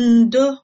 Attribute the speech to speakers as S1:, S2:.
S1: ndo